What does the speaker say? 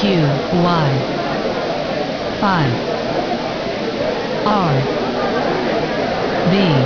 q y 5 r b